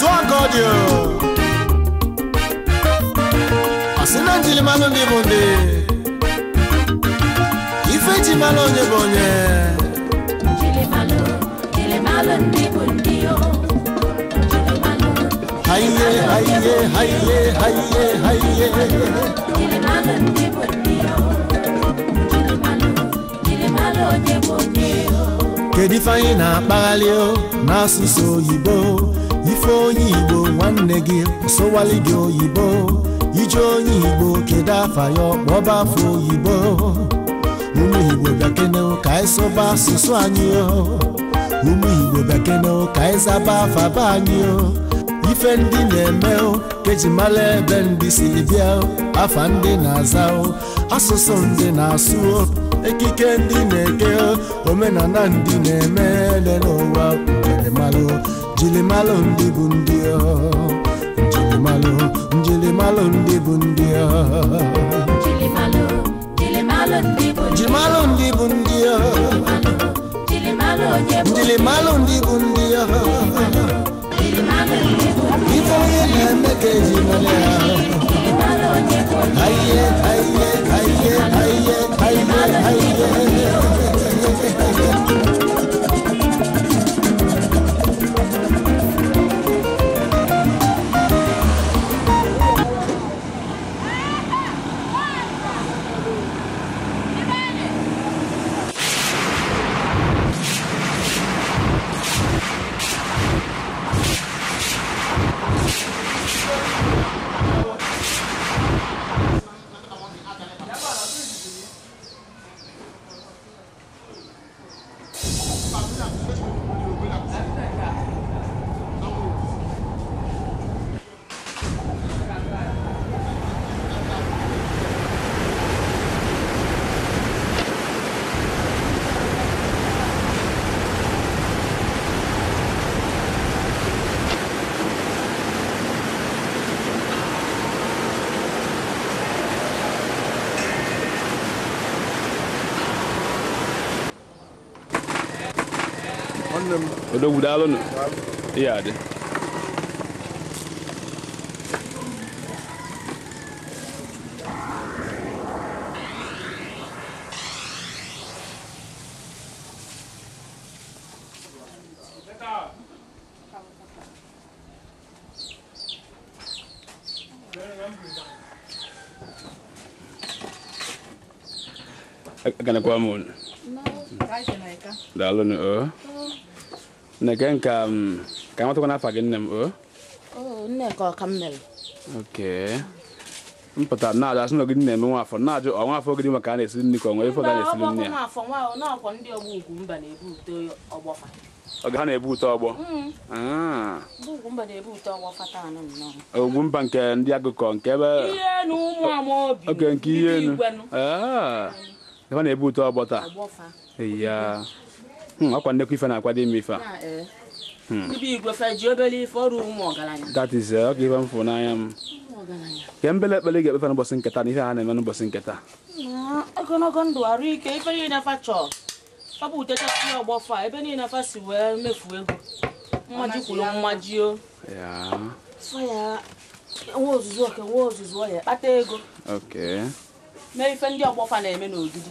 It's one God you. Asinanjili malundi bundi. Ifeji malonye bonye. Jili malu, jili malundi bundi yo. Haiye, haiye, haiye, haiye, haiye. Jili malundi bundi yo. Jili malu, jili malonye bonye yo. Kedifanyị na-akpaghalị o n'asụsụ oyibo ife onye igbo nwanne gị sowali gị oyibo ije onye igbo kedu afa ya ọkpọba afọ oyibo ụmụ igbo bekene ka anyị asụsụ anyị ụmụ igbo bekene ka anyị zaba afa be anyị ife ndị na-eme keji mara ebe ndị si bịa afa ndị na-aza asụsụ ndị na-asụ ekike ndị na-eke omenala ndị na-eme n'ụwa malo, njilimalo njilimalo ndị bụ ndị njilimalo njilimalo ndị bụ ndị njilimalo ndị bụ ndị njilimalo ndị bụ ndị ife onye na-eme ka eji mara ya aye aye aye aye aye aye udah iya, ya, udah yaade iya ada. Kan aku amun. na eka. ni eh. a nka mm, ka amatakwa n'afa gị nne m o Nneka ọka m mere oke mpụtara na-ajụ asị na ogidi na-eme nwafọ na-ajụ afọ ogidi maka a na-esi nri ka ọ nwere ife na-esi nri ya oge ha na-ebu ute mm. ah. nke ndị agụkọ nke ebe oke ihe enu ha na-ebu ute ọgbọ taa ọkwa hmm, nnekwu ife na-akwado m ife a eh. hmm. that is ọ eh, ga ife m fụ n'anya m ke mbele ekpele ga-ekpefe n'ụbọchị nketa na ife ha na-eme n'ụbọchị nketa ogologo ndụ arụ ike ife niile afa chọọ ọ bụ utechasị ọgbọ fa ebe niile afa si wee mefu ego mmaji kwuru mmaji o nwe ozuzu oke nwe ozuzu ọhịa kpata ego mee ife ndị ọgbọ fa na-eme n'ogidi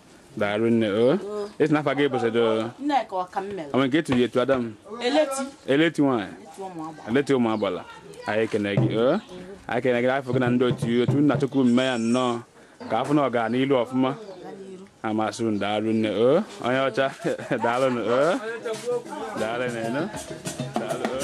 daalụ nne o esi n'afọ aga ebosodo ama nke etiri etu adam eleti nwaanyị eleti ụmụ agbala anyị ekene gị o anyị ekene gị afọ gị na ndị otu otu nna chukwu mme ya nnọọ ka afọ na ọga n'ilu ọfụma amasị m daalụ nne o onye ọcha daalụ nụ o daalụ nne daalụ o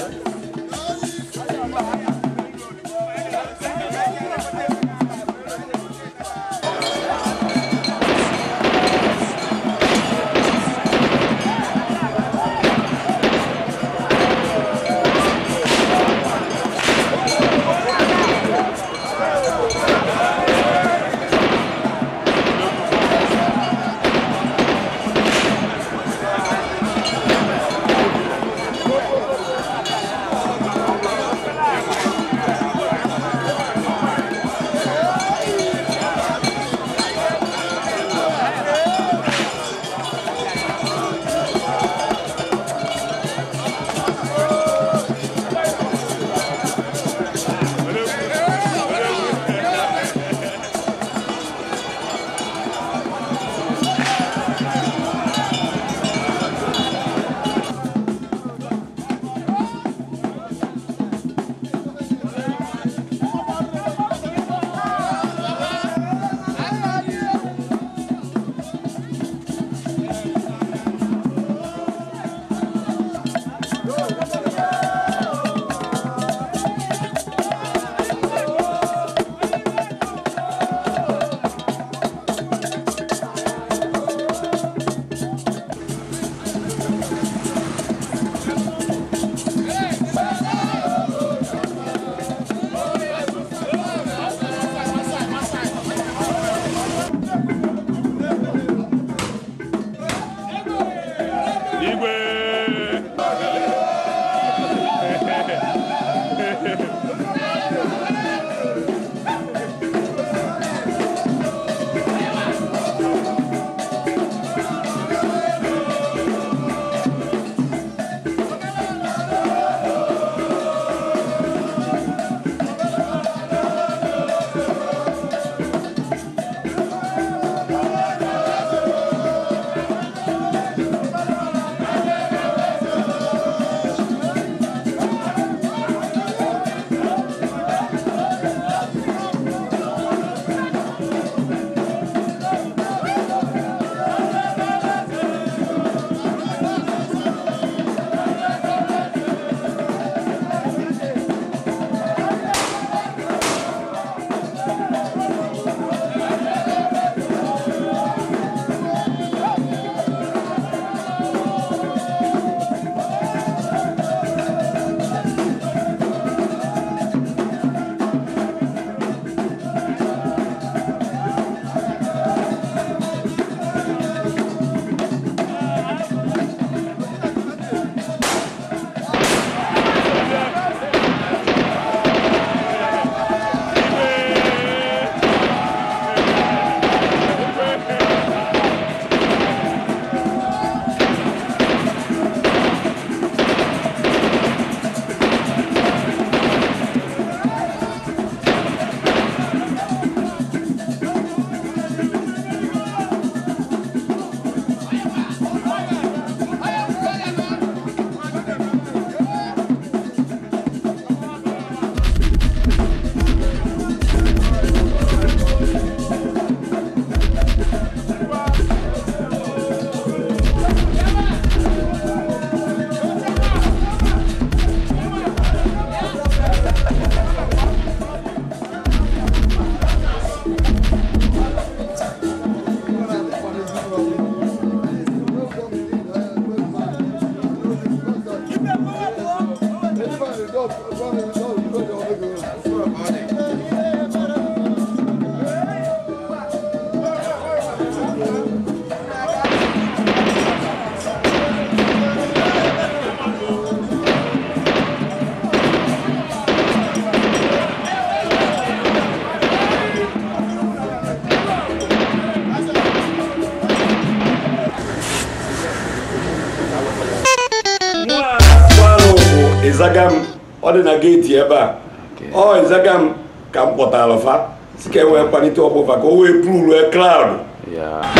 ezagam ọ na gate ebe a ọ ezagam ka m kpọtara fa si ka e wee kpalite ọkpụfa ka o wee pụrụ rue Yeah.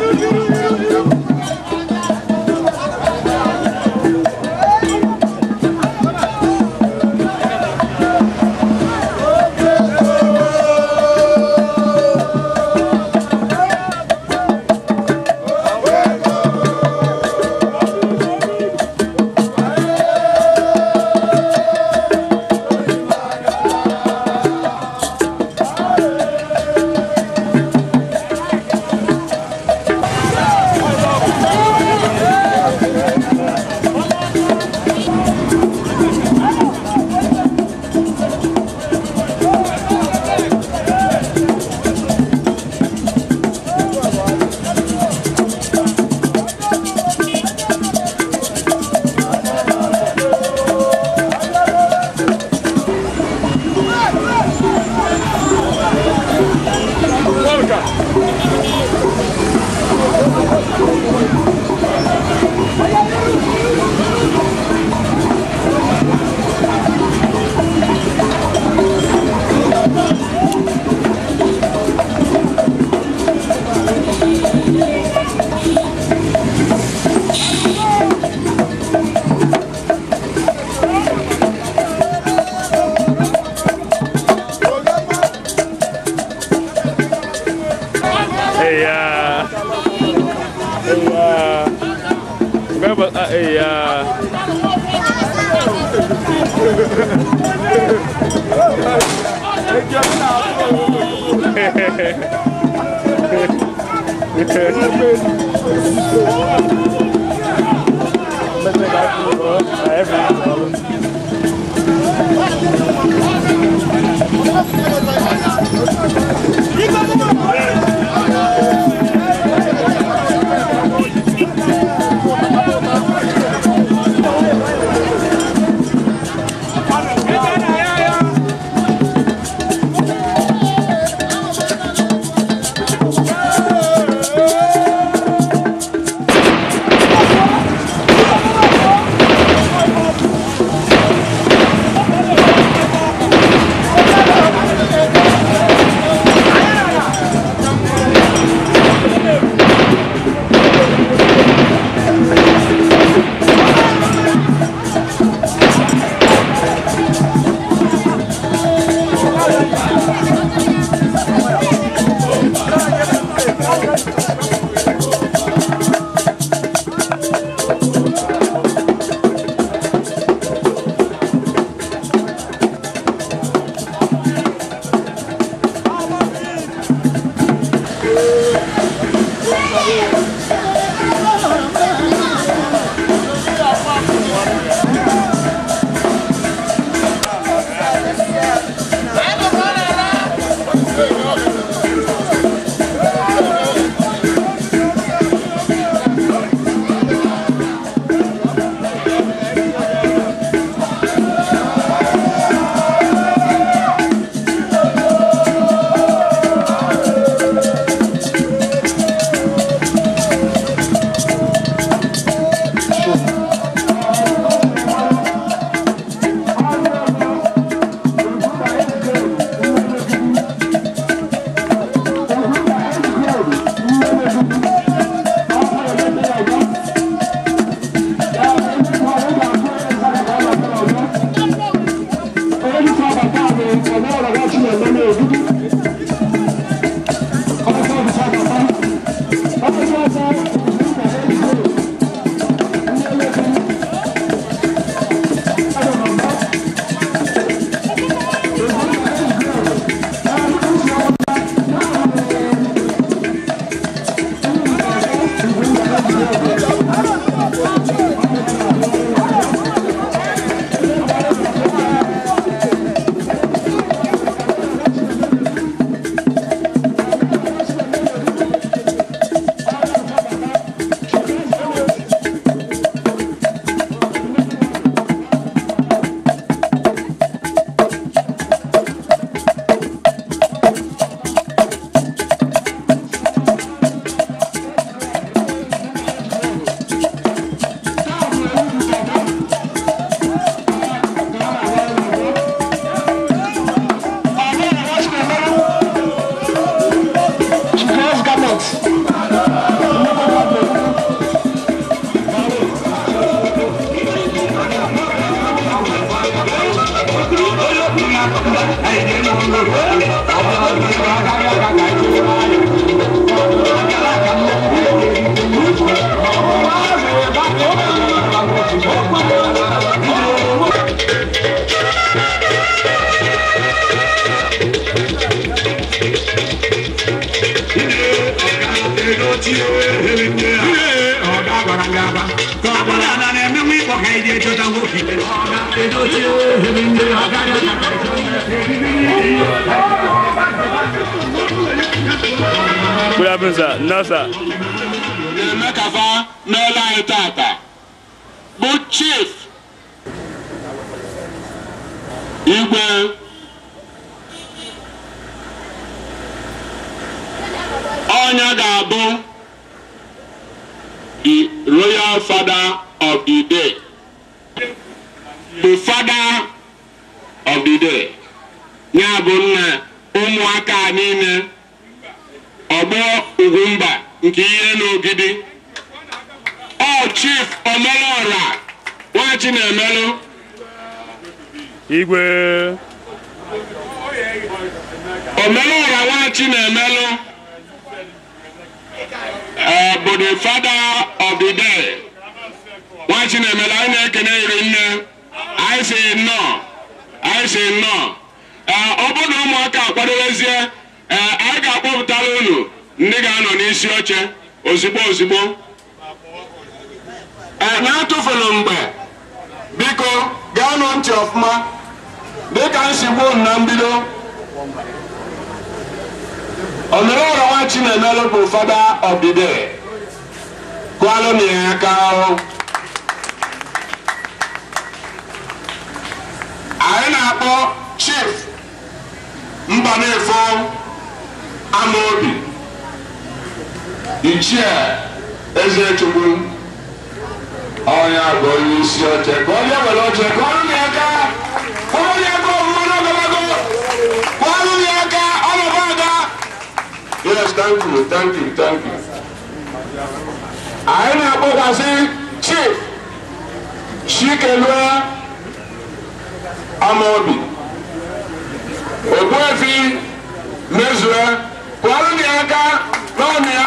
Hehehehe ga-emekasa n'ụlọ anyị tata bụ chief igwe ọnya ga-abụ the royal father of the day the father of the day ya bụ nna ụmụaka niile ọgbọ ugwumba nke ihe n'ogidi ọ chief omelora nwachi na-emelụ igwe omelora nwachi na-emelụ bụ the father of the day nwachi na-emelụ anyị na-ekene iri nne anyị si nnọọ anyị si nnọọ ọ bụrụ na ụmụaka akwadobezie anyị ga-akpọpụtara unu ndị ga-anọ n'isi oche ozigbo ozigbo ee na-atụfulu mgbe biko gaanụ ntị ọfụma dịka nsigbu na mbido na Chinemelu bụ fada ọbide na ya aka anyị na-akpọ chief Mbanefo amaobi ichie eze chukwu onye bụ onye isi oche ka onye were oche ka ọrụ ya aka ọrụ ya aka ọmụma n'ogologo ka ọrụ ya aka ọnọdụ aga yes thank you thank you thank you anyị na-akpọkwasị chief chikelue amaobi ogbuefi mezue kwụọrụ ya aka n'ọnụ ya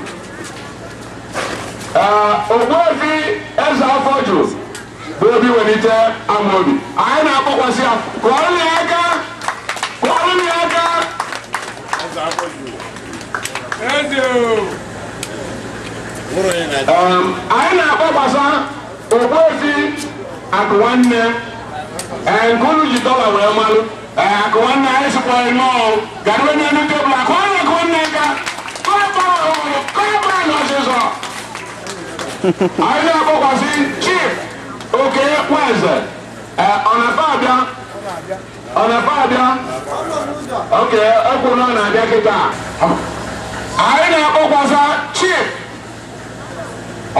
Ogbuefi eze afọ jụụ bụ obi welite Amobi anyị na-akpọkwasị ya kụọrọ ya aka kụọrọ ya aka anyị na-akpọkwasa Ogbuefi akụ nwanne nkulu ji dọla wee malụ akụ nwanne anyị sịkwara nọọ garịwe n'elu tebụl akụ nwanne akụ nne aka kọrọ kọrọ n'ọsịsọ anyị na-akpọkwasị chief oke nwaeze e, ọnafabịa ọnafabịa oke ekwuru na ọ na-abịa kịta anyị na akpọkwasị chief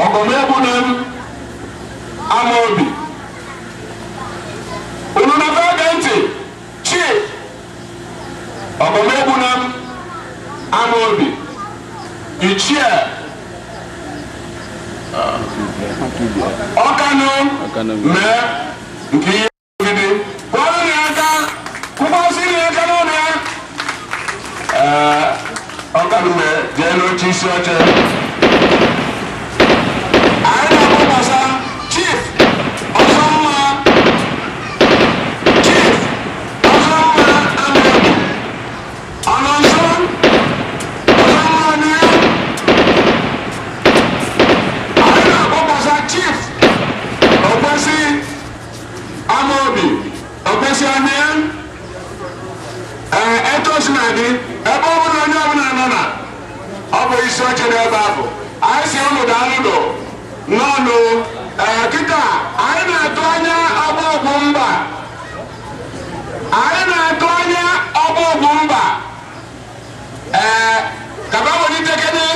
ọgọmegbu na m amaobi unu na-abịa ntị chief ọgọmegbu na m amaobi ichie ọkànú mẹ nkì í gidi wọn ní ẹka kúkọ sí ní ẹka náà ní ẹ mẹ jẹ ló ti sọ ee eh, etu si na dị ebe ọ bụla onye ọbụla nọ na ọ bụ isi ọchị dị ebe ahụ anyị si ụlọ daalụdo n'ọnụ ee kịta anyị na-atụ anya ọgbọgwụ mba anyị na-atụ anya ọgbọgwụ mba ee eh, kaba welitekede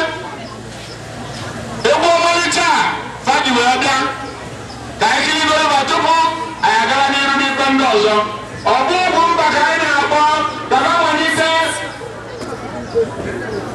egwu ọmalịcha fadi wee bịa ka anyị kiri goro tupu anyị agara n'iru n'ikpe ndị ọzọ ọgbọgwụ mba ka anyị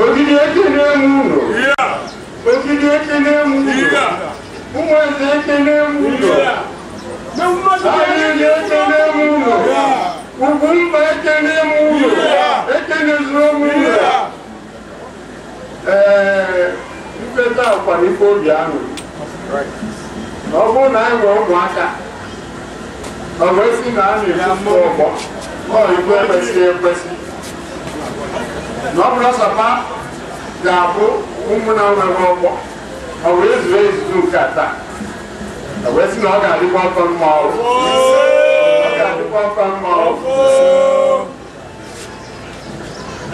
Ogidi ekene mu no. Ogidi ekene mu no. Umwezi ekene mu no. Ayini ekene mu no. Ugumba ekene mu no. Ekene zuo mu no. Mkpeta akwara ife obi ahụ. Na ọ bụrụ na anyị nwere ụmụaka, ọ bụ esi na a na-ekwusi ọgbọ, ọ igwe ekwesịghị ekwesị. na ọ bụrụ ọsọpa ga-abụ ụmụna nwere ọkpọ ọ wee zuru ezuzu nke taa ọ wee sị ọ ga-adịkwa ọtọ mma ọrụ ọ ga-adịkwa ọtọ mma ọrụ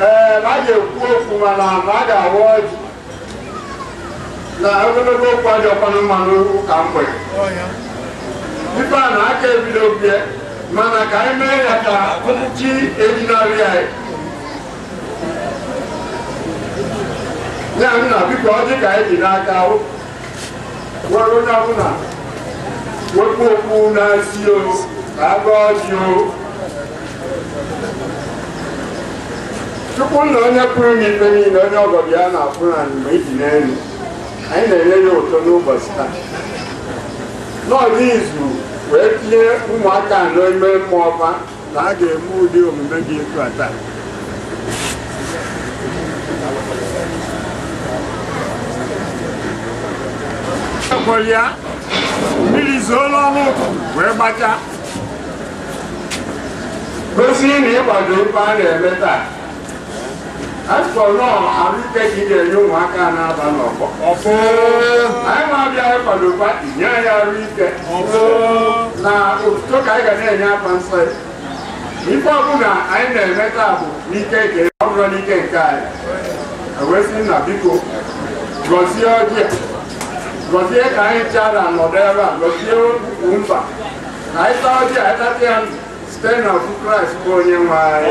ee na a ga-ekwu okwu mana na a ga-awa ọjị na ogologo okwu adị ọkwanụ mmanụ ụka mgbede ife a na aka ebido bie mana ka anyị mee ya ka chi ejinarị anyị ya nna biko ọ dị ka anyị dị n'aka nwere onye ọbụla wepụ okpu na-esi o ka agba ọjị o chukwu na onye pụrụ n'ikpe niile onye ọgọdọ ya na-apụrụ anyị mgbe iji n'elu anyị na-enye ya ụtọ n'ụbọchị taa n'ọdị izu wee tinye ụmụaka n'ime mmụọ ọba na a ga-eme ụdị omume dị etu ata. ya mmiri zoola ọnụ wee gbacha gosi na ịgbado ife a na-eme taa afọ nọọ arụike ka ị ga-enye ụmụaka na-aba n'ọgbọ anyị na-abịa ịkwado pati nye ahụike na otuto ka anyị ga na-enye aka nsọ ya ife ọbụla anyị na-eme taa bụ n'ike nke ọ bụrụ n'ike nke anyị ewesị na biko gọzie ọjị ta là Christ của gọzie ka anyị chara nọdụ ebe a gọzie ukwu mkpa na anyị taa ọjị anyị tatịa ndụ site na ọkụ kraịst bụ onye nwe anyị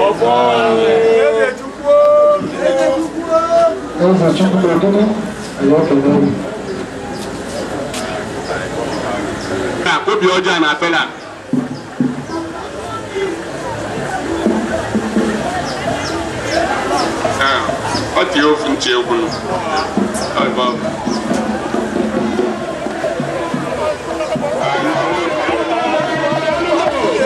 ka obi ọjọọ na apela ọ dị ofu nche egwu ọ bụ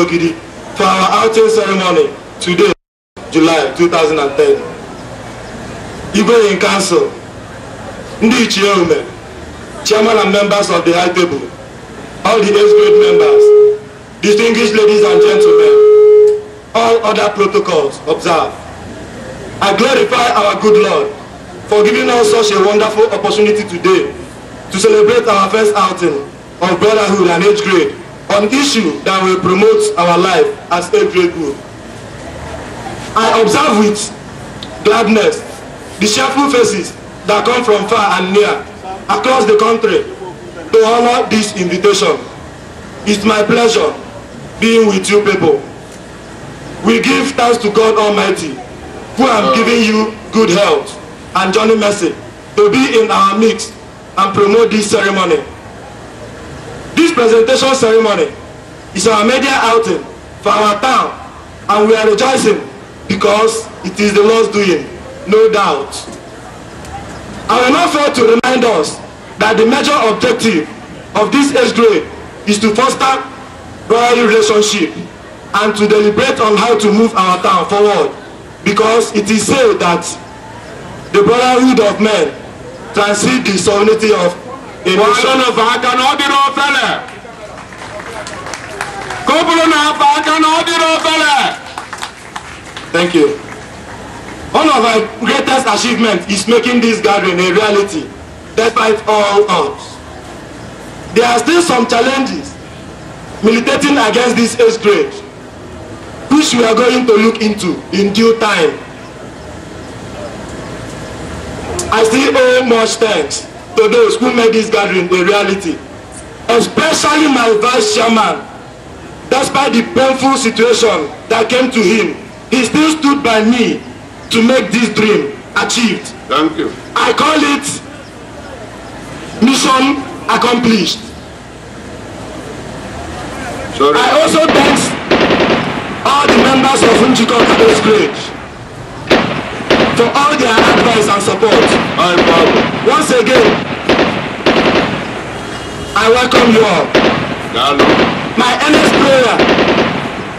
Ologidi for our outing ceremony today, July 2010. Igwe in Council, Ndi Chiome, Chairman and members of the High Table, all the age grade members, distinguished ladies and gentlemen, all other protocols observed. I glorify our good Lord for giving us such a wonderful opportunity today to celebrate our first outing of brotherhood and age grade on issue that will promote our life as a great group. I observe with gladness the cheerful faces that come from far and near across the country to honor this invitation. It's my pleasure being with you people. We give thanks to God Almighty who am giving you good health and journey mercy to be in our midst and promote this ceremony This presentation ceremony is our media outing for our town and we are rejoicing because it is the Lord's doing, no doubt. I will not fail to remind us that the major objective of this age grade is to foster brotherly relationship and to deliberate on how to move our town forward because it is said that the brotherhood of men transcends the sovereignty of Bɔɔlɔ vaaka na ɔdi n'o fɛlɛ. Kóbulu na vaaka na ɔdi n'o fɛlɛ. Thank you. One of our greatest achievements is making this gathering a reality despite all odds. There are still some challenges militating against this age grade which we are going to look into in due time. I still owe much thanks to those who made this gathering a reality, especially my vice chairman. Despite the painful situation that came to him, he still stood by me to make this dream achieved. Thank you. I call it mission accomplished. Sorry. I also thank all the members of Unjiko Kado's Grade To all their advice and support. Um, um, once again, I welcome you all. Hello. My earnest prayer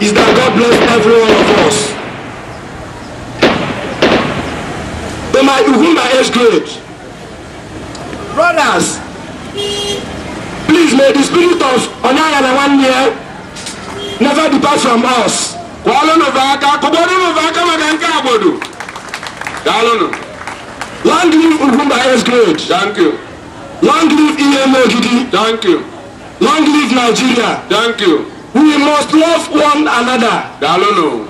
is that God bless every one of us. To my who my age grade, brothers, please may the spirit of Onayana one year never depart from us. Kwa ọlọ́nà bá a ká kò gbọ́dọ̀ Daalunu. Long live Ugumba S great. Thank you. Long live EMO Gidi. Thank you. Long live Nigeria. Thank you. We must love one another. Daalunu.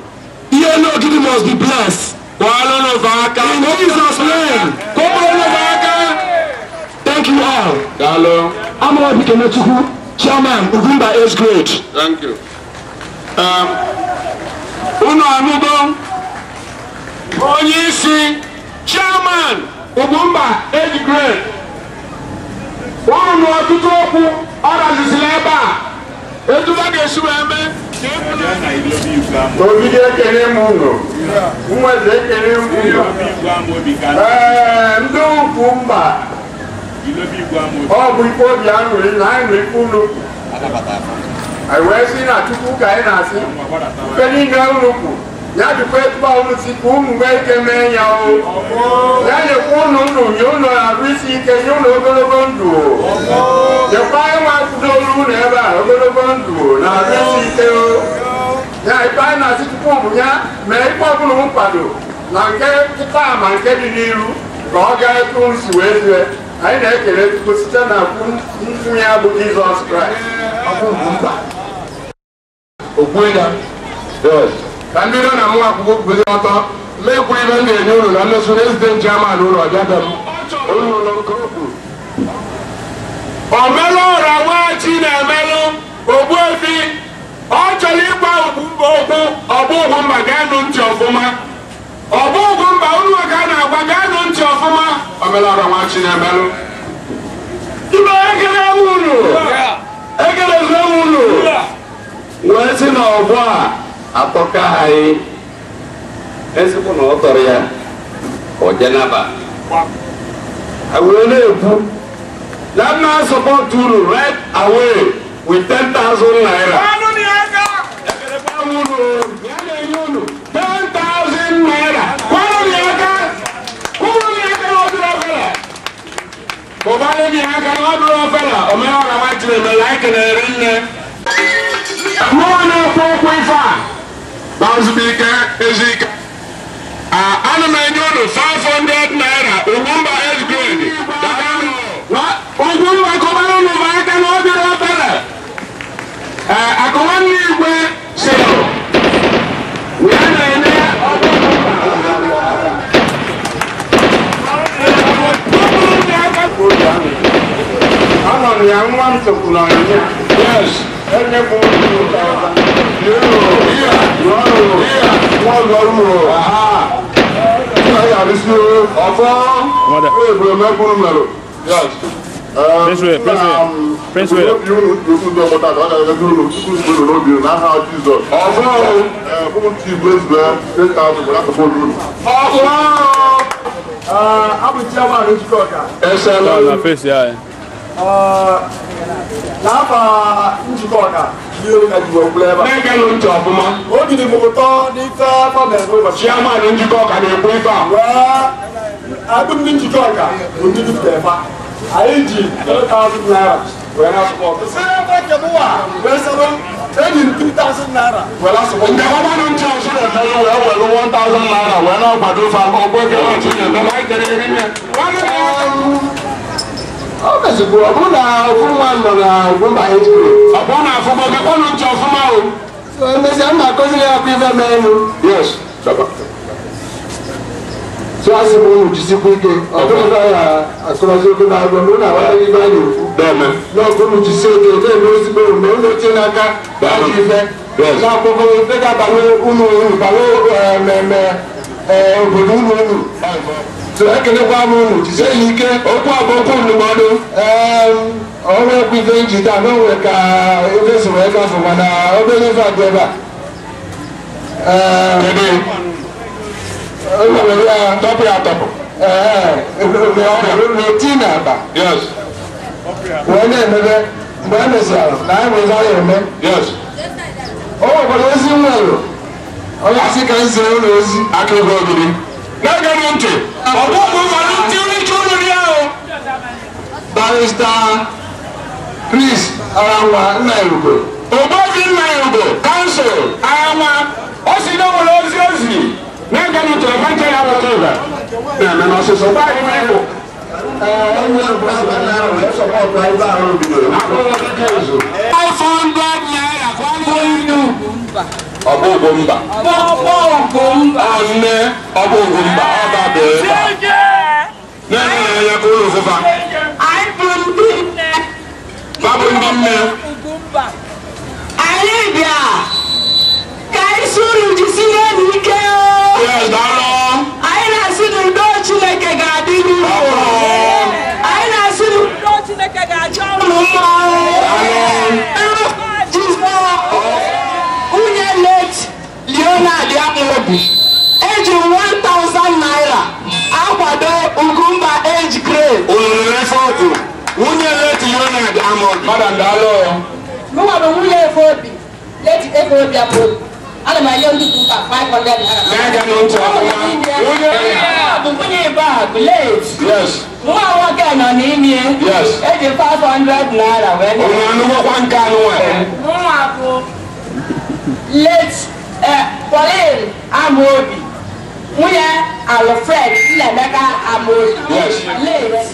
EMO Gidi must be blessed. Kwalono Vaka. In Jesus' name. Kwalono Vaka. Thank you all. Daalunu. Amara Bikenetuku, Chairman Ugumba S great. Thank you. Um, Uno Amugo. onyeisi isi chairman Ugwumba age grade unu na ọtụtụ okwu ọ razizila ebe a etu ha ga-esi wee mee e Ogige ekele m unu nwezi ekele m unu ee ndị mba ọ bụ ikpe obi aṅụrị na anyị nụ ikpe unu anyị wee sị na Chukwu ka anyị na-asị ife niile unu kwuru nyadi kwe kpawo si k'u mun bɛ kɛmɛ ɲa o yanni k'u nu dun y'u nɔ a bɛ si kɛ y'u nɔ ogologo dun o yɛkpa ye wa dolu nɛ ba ogologo dun o na a bɛ si kɛ o nya ipa na si k'u mun nya mɛ ipa bulu mun pado na nke kita ma nke di n'iru ka ọ ga etu nsi wee zue anyị na-ekele Chukwu site na mfu ya bụ Jizọs Kraịst ọ bụ mba. Okwu ya. ka ndị nọ na nwa akwụkwọ kwuzie ọtọ mekwa ibe m ga-enye unu na nlesu rezident chairman ụlọ ọbịada m omelụ ụra nwaghachi na-emelụ ogbuefi ọ chọrọ ịgba okwu ọbụghụ mba ga-anụ ntị ọfụma ọbụghụ mba unu ka a na-agwa ga-anụ ntị ọfụma omelụ ụra nwaghachi na-emelụ ibe ekele ewu unu ekele ewu unu wee si na ọgbọ a atɔka ayi esiku na ɔtɔri ya ɔdze n'aba awuro na ebu that man support turu right away with ten thousand naira. kanu ni aka. ɛfɛ bá wúlò yálẹ̀ yóò ten thousand naira kanu ni aka kúrú ni aka ọdún ọfẹlẹ. bọ̀bá ni aka ọdún ọfẹlẹ ọmọ yàrá wa jìnnà mẹ́lá kẹlẹ́ rẹ̀ ń lẹ. mọ́ọ̀nà bazubike ezike ana m enye unu 500 naira ugwumba s grade ugwumba kọbara unu bụ aka na obere obere akọwa nne igwe si ya na-enye Anọ m ya nwa m tụkwuru ọnyịnya. Yes. Enye m otu ụta ọba lérò lọ́rùn wọ́n lọ́rùn ọ̀fọ́ ìbùdó mẹ́kúnnù mẹ́rọ. Prince Ray, Prince Ray, Prince Ray. You know, you know, but I don't know. You know, you know, you know how Jesus. Ọ̀fọ́ fún ti Prince Ray, take out the black people rule. Ọ̀fọ́. Abu Chiama ní Chicago. Ẹ ṣe lọ́wọ́. Ṣé ọ̀nà fèsì yá ẹ? Láàbà ní Chicago yóò ka jùlọ kulẹ ne kɛ ló ń kuma. o jiri mugu tɔ ni fɛn fɛn bɛn ko ma. siyama ni jikɔ ka nin kun fa. wa a bɛ min jikɔ kan o ni bi bɛn fa a ye ji kɛlɛ taasi naira o yɛrɛ sɔgɔ. sɛbɛn bɛ jamu wa. bɛ sɛbɛn e ni ti taasi naira. wɛrɛ sɔgɔ. nka o ma nin cɛw si de fɛn ye o yɛrɛ wɛrɛ wɔn taasi naira o yɛrɛ gbado fa o bɛ kɛ o ti ɲɛ bɛɛ ma kɛlɛ kɛlɛ ọbẹ̀sìkò ọ̀bùn na ọ̀fun wa nọ na ọ̀fun ba eight grade. ọ̀bùn na ọ̀fun bọ̀ kẹ́kọ̀ọ́ ló ń tẹ ọ̀fun o. ẹnìyẹsì ẹ̀ ń bá kọ́sílẹ̀ ẹ̀kú ifẹ̀ mẹ́rin. yes dọ́gba. tí wàá sì mú ohun jù sí kúndé ọ̀bùn náà yà àkọlọ́sí ogun náà gbọ́n mú náà wáyé ibà yòó fún. bẹ́ẹ̀ni. náà kó ohun jù sí oge ní èmi ó sì gbé òun mẹ́rin ló ti ń aka láti ifẹ̀. náà gbogbo ìgbéga bàlẹ́ so ekelekwa m unu jisie ya ike okwu abụọkwu ndụmọdụ ọrụ ekwu ife iji taa gbanwee ka ife soro ịgafe mana obere ife adị ebe a ewere ya tọpụ ya tọpụ na-eti na akpa wee na-emebe mgbe e mesịrị na anyị nwere ya eme o nwekwara ozi nwere onye asị ka m zere ụlọ ozi aka ego ogiri gẹ́gẹ́ ló ń tè ọ̀pọ̀ gbogbo ló ti rí júlù ní ẹ̀ o. barista Chris Aranwa nna Irugwe Ogbobi nna Irugwe council Aranwa o si n'obodo ozi ozi na-ege n'utu ebe nke ya bụ tụba na-eme n'ọsịsọ gbaghị m ịbụ. Five hundred naira ọbụ ụgwọ mba nne ọbụ ụgwọ mba ọ dabere ebe a na-enye ya ka ụlọ ụfụfa babụ ndị nne anyị bịa Ahmed Ahmed madam daalụ mụnwara nwunye efobi leti efobi abụọ ana m enye ndị ụka 500 naira na-aga n'otu ọkụma nwunye ebe a bụ leti nwa nwoke nọ n'ime eji 500 naira wee onye anụgwọkwa nke anụ nwanyị nwa bụ leti Pauline Amobi nwunye Alfred Nnaemeka Amobi leti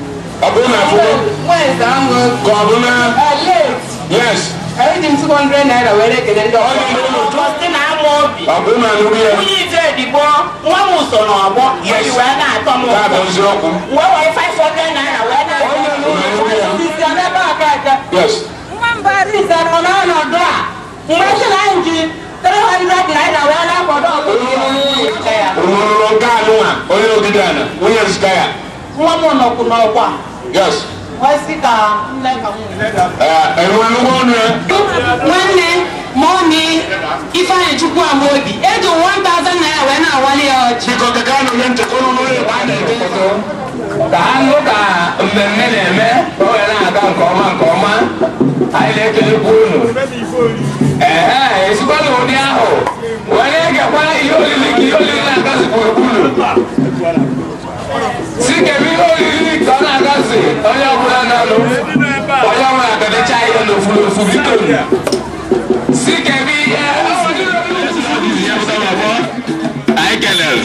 abuna afuwo kọbuna yes. ayi di two hundred naira wẹrẹ kẹlẹ ndọ. ọyọ ndọ ndọ tọsi na amọ obi. abuna anugu yẹ. wúyí ìjọ ìdìbò wọn mú sọnà ọgbọ. yes ìwé náà tọ́ mọ. káàbọ̀ ń sọ ọkùn. wọ́n wọ five hundred naira wẹ́n náà. ọyọ ndọ ndọ sísè ọ̀nà bá a káàkiri. yes. wọ́n bá rí ìsẹ̀rọ̀ náà nà dọ́ a. wọ́n ṣe láyé jí three hundred naira wẹ́n náà kọ́ dọ́ ọ̀gbìn. olùrànlọ́gá àná wa nwa m nọkwụ n'ọkwa nwanne ma ọ na ifeanyị chukwu ama obi eji n'a ya wee na-awali ya ọchị ka anụ ka mmemme na-eme o wee na-aga nke ọma nke ọma anyị na-ekelekwa unu ee esikwana ụdị ahụ wee na ihe olili ka ihe olili na Sikemi oyiri kọ́nà gọ́sì onye ọbụla nọ n'ofu onye ọma agadacha ihe n'ofu n'ofu bido Sikemi ihe anyị kelere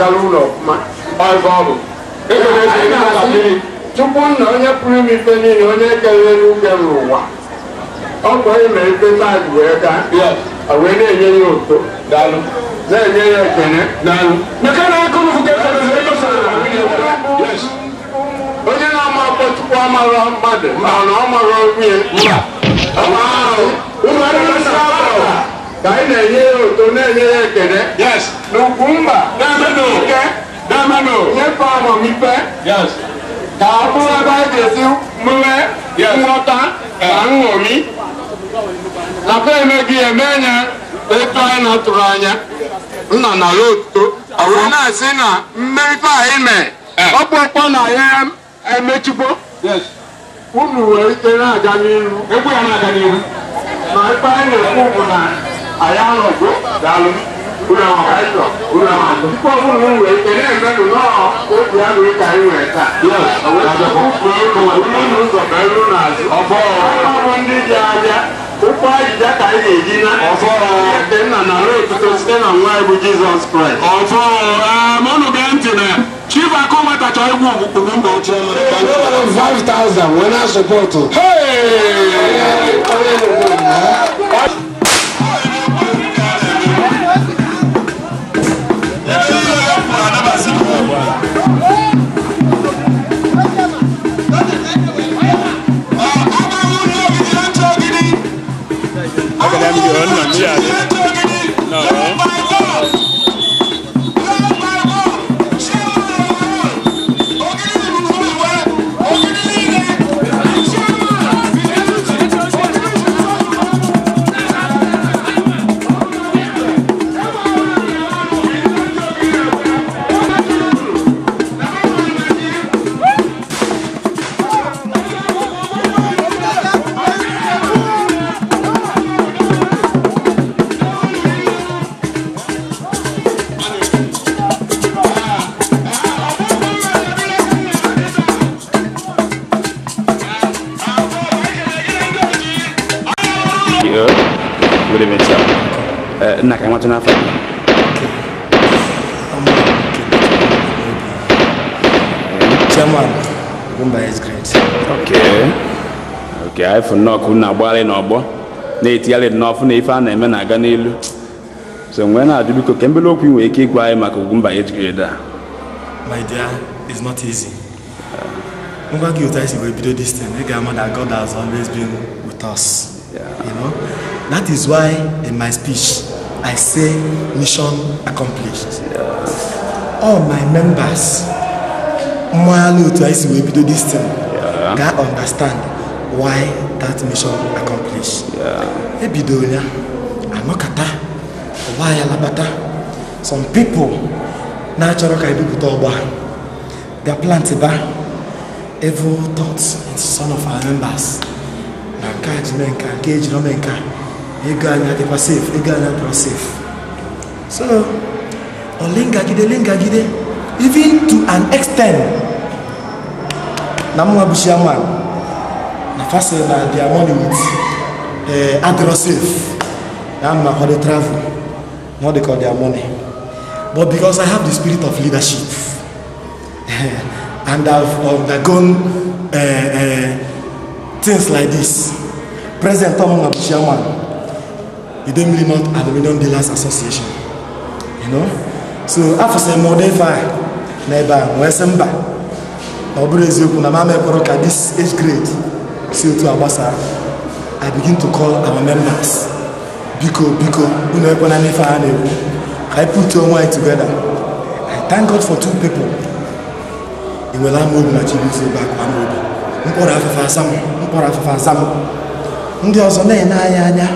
agala ụlọ ọfụma baịbụl tupu nna onye pụrụ ime ife niile onye kelere uke n'ụwa ọ bụ onye mere ife wee gaa wee na-enye ya oto na-enye ya ekene onye na-ama tupu amara mmadụ mana ọ mara ka anyị na-enye ya oto na-enye ya ekene mba Fano. Nye Fano Mife. Yes. Ka ọbụrụ ebe anyị ga mmewe nghọta na nṅomi. Nakwa emeghị eme nye etu anyị na-atụrụ anya. Nna na otuto. na-asị na mme anyị e Ọ bụ na ya emechigbo. Yes. Unu wee na-aga Egwu ya na-aga n'ihu. Na ebe na-ekwu bụ na ga anọgo unawaanza unachukua Mungu enendo nao kodi yangu ikaiweka ulinuzo pẹ̀lú nazi ọmọ ndị dị abịa ụkwụ ajija ka anyị na-eji na ede nna na ruo etuto site na nwa bụ Jizọs Kraịst ọfọ mọnụ gee ntị na Chief Akoma tacha egwu ugwu mba ochie Five thousand I support. Hey! I'm your own man. ka efu nnọọkụ na-agbagharị n'ọgbọ na-etigharị n'ọfụ na ife a na-eme na-aga n'elu so nwee na-ajụ biko ka mbele okwu nwere ike ịgwa anyị maka ugwu mba ejigide a my dear it's not easy ngwa gị otu anyị si wee bido dis thing ị ga-ama that God has always been with us you know that is why in my speech I say mission accomplished all my members mmanya otu anyị si wee bido thing ga understand why that mission accomplished. ebidoro ya anọkata ọgba ya labata some people na-achọrọ ka ebipụta ọgba their plant evil thoughts in some of our members na nke a ji mee nka nke ejiri ome nka ego anyị adịkwa safe ego anyị adịkwa safe so olingagide lingagide even to an extent na mwa First, na uh, their money with uh, aggressive. Now, na how they travel. Now they call their money. But because I have the spirit of leadership, and I've undergone uh, uh, things like this. President Tom of Chairman, the Demily North Aluminium Dealers Association. You know? So after some more than five, neighbor, Wesemba, Obrezio, Kunamame Koroka, this age grade. CO2 Abasa, I begin to call our members. Biko, Biko, I put two and together. I thank God for two people. Iwela Mogu na Chibuzo back one Mogu. Mkpọrọ afefe asamụ, mkpọrọ afefe asamụ. Ndị ọzọ na-ene anyị anya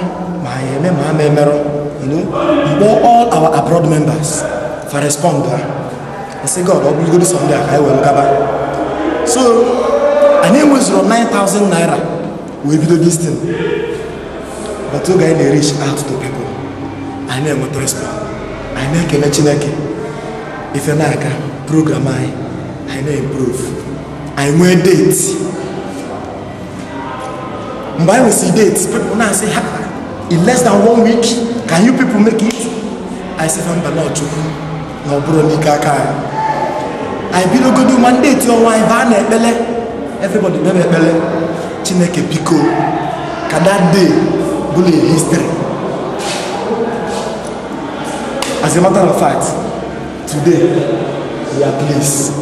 ma anyị eme ma ama emerụ. You know, mgbe all our abroad members for respond ha. I say God, ọ bụrụgodo Sunday a ka anyị were gaba. So, anyị nine thousand naira wee bido this thing but oge anyị na-erich out to people anyị na-enweta respect I na-ekele chineke ife na-aga program I anyị na-improve anyị nwee date mgbe anyị nwesịrị date people now say, ha in less than one week can you people make it I sịfa mba na ọchukwu na ọ bụrụ n'ike aka anyị anyị bidogodo ma ọnwa anyị baa na ekpele everybody na ekpere chineke biko ka that day bụrụ a history as a matter of fact today we are pleased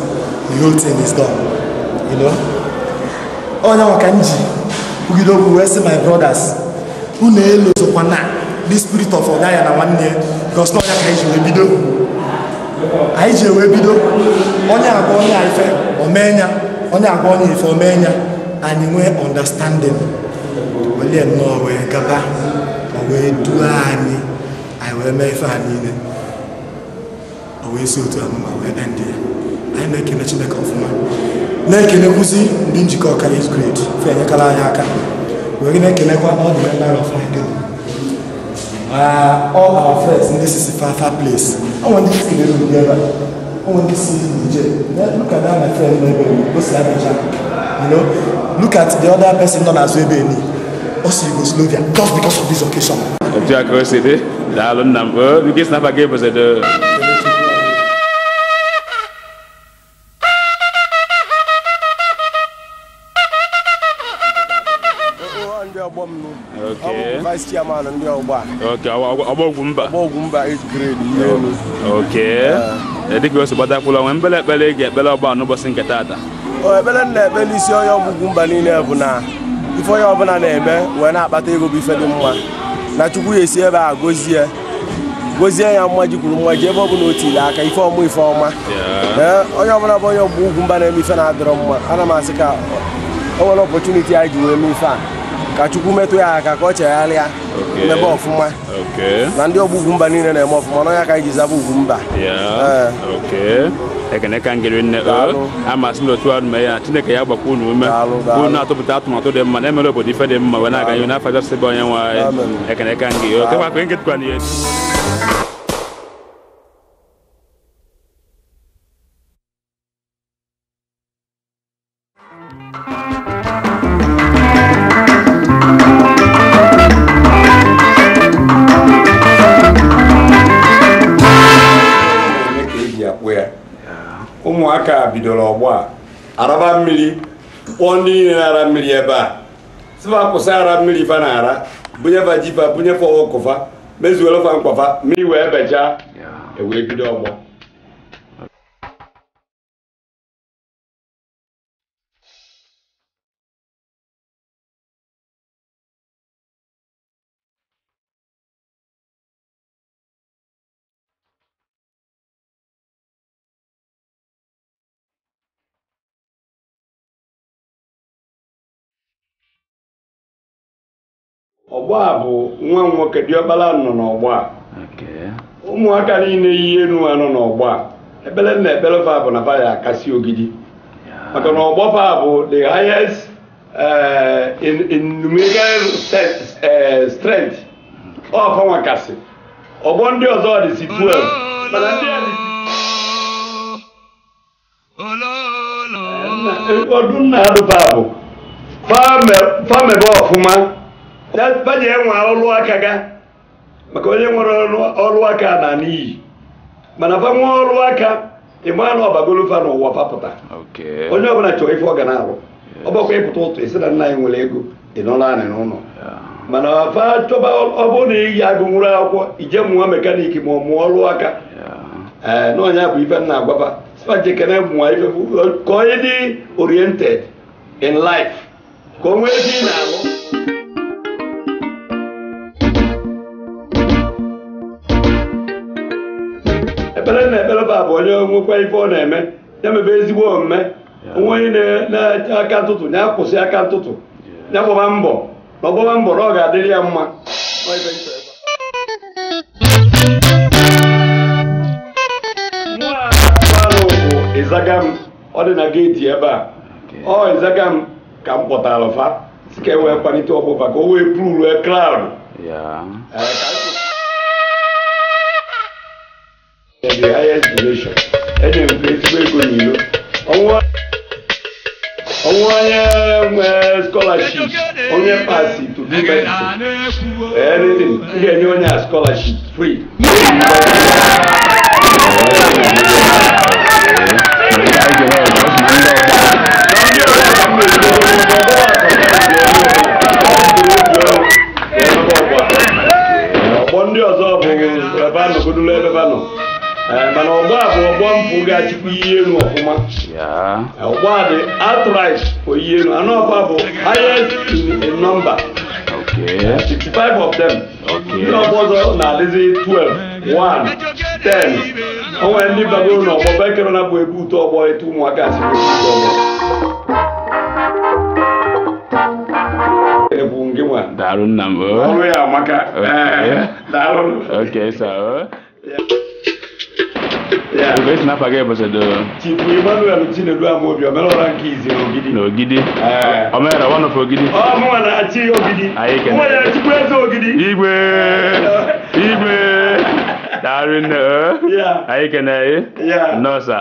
the whole thing is gone you know onye nwa ka m ji kwugide okwu wee sị my brothers unu elu sokwa na the spirit of ọda ya na nwanne ya gosna ọnya ka anyị ji wee bido anyị ji wee bido onye agwa onye ife omee ya onye agwa onye ife omee ya anyị nwee ọndastandịn onye nnọọ wee gaba o wee duo anyị anyị wee mee ife a niile o wee si otu amụma wee ndị ya anyị na-ekele chineke ọfụma na-ekelekwuzi ndị njikọ ọkara is great fe enyekala anyị aka wee na-ekelekwa all the member of my group all our friends ndị sisi fafa place ọ nwere ndị sisi na-eru ebe a Owen disi DJ, lè, luk a dè an mè fèl yon webe yon, gò sè la mè jank, yon lò, luk a dè an mè fèl yon as webe yon, osi yon gò sè lò vyak, kòf bèkòs yon vizokèsyon. Otya kò se de, dè alon nan vò, yon kè snap a gè vò se de. E o an dè yon bom nou, amon kwa isti yaman an dè yon ba. Ok, abon goun ba. Abon goun ba is kredi. Ok. A. dịka o si gbatakwụla nwee mbele ekpere ị ga-ekpere n'ụbọchị nke taata ekpere ebele na-ekpe n'isi onye ọgwụgwụ mba niile bụ na ife onye ọbụla na-eme wee na-akpata ego bụ ife dị mma na chukwu ya esi ebe a gozie gozie ya mma ji kwuru mma ji ebe ọ bụla o tiri aka ife ọma ife ọma onye ọbụla bụ onye ọgwụgwụ mba na-eme ife na-adịrọ mma ana m asị ka o nwere ọpọchuniti anyị ji wee mee ife a ka Chukwu metụ ya aka ka ọ chegharịa mebe ọfụma na ndị ọgbọ Ugwumba niile na-eme ọfụma n'ọnya ka anyị ji zaba Ugwumba eh. ekene ka ngere nne eh, amasị m otu ahụ mee ya chineke ya gbakwa unu ume unu atụpụta atụmatụ dị mma na-emere obodo ife dị mma wee na-aga n'ihu n'afọ abịa sịba onye nwe anyị ekene ka ngị okekwa kwenye nkịtụkwa n'ihe bidoro ọgbọ a araba mmiri kpọọ ndị niile na-ara mmiri ebe a sịfa kwụsị ara mmiri fa na-ara bunyefa jifa bunyefa ọkụfa mezuorofa mkpọfa mmiri wee bechaa ewee e bido ọgbọ ọgbọ a bụ nwa nwoke diọbala nọ n'ọgbọ a ụmụaka niile yi enu nọ n'ọgbọ a ebele na ebele fa bụ na fa ya akasi ogidi maka na ọgbọ fa bụ the highest eh, in numerical eh, strength ọfa nwakasị ọgbọ ndị ọzọ dịsi 12 mana ndị a ọdụ nna adụ fa bụ fa mebe ọfụma banye nwe ọlụ aka ga maka onye nwere ọlụ aka na n'iyi mana fa nwe ọlụ aka ịma na ọbagolofa n'ụwa fapụta onye ọbụla chọrọ ife ọ ga na-arụ ọ bụkwa ịpụta ụtụ esi na nna anyị nwere ego ị nọrọ anị n'ụlọ mana fa chọba ọ bụrụ na iyi agụ nwụrụ akwụkwọ ije mụọ mekaniki ma ọ mụọ ọlụ aka ee eh, na onye bụ ife nna agwaba spajekene mụọ ife ka onye dị oriented in life ka o nwee ezi na-arụ onye nwekwa ife ọ na-eme ya mebe ezigbo omume onwe onye na-eche aka ntụtụ ya kwụsị aka ntụtụ ya gbọba mbọ na ọgbọba mbọ na ọ ga-adịrị ya mma ịzaga m ọ dị na geeti ebe a ọ ịzaga m ka m kpọtara fa si ka e wee kpalite ọkpụfa ka o wee pụrụ ruo kraụdụ the highest duration ɛna nkuretu bɛgu nilo ɔmo ɔmo anyɛ ɛɛ scholarship ɔnyɛ paasi to do medicine anything ndi ɛni ɔnyɛ a scholarship free. ndị ọzọ bụ ebe a nọ godulo ebe a nọ Eh, mana ọgbọ bụ ọgbọ mpụ ga-achịkwa ihe elu ọfụma eh, ọgbọ a dị outright for ihe elu anọkwa bụ highest in number 65 eh, of them ndị ọgbọ ọzọ na-adịzi 12 1 10 o nwere ndị bagoro na ọgbọ bekere na bụ ebu ụtọ ọgbọ etu ụmụaka si bụ nke nna m oh. ọrụ ya amaka Esi n'afọ aga ebesedo. Chifu Emmanuel Chinedu Amobi omelụra nke izi n'Ogidi. N'Ogidi. Eh. Omeere one of Ogidi. Ọ oh, na-achị Ogidi. Anyị kene. Mụnwa na eze Ogidi. Igwe. Igwe. Daarị nne. Anyị kene. Nọọsa.